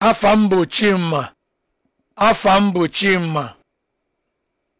afa m bụ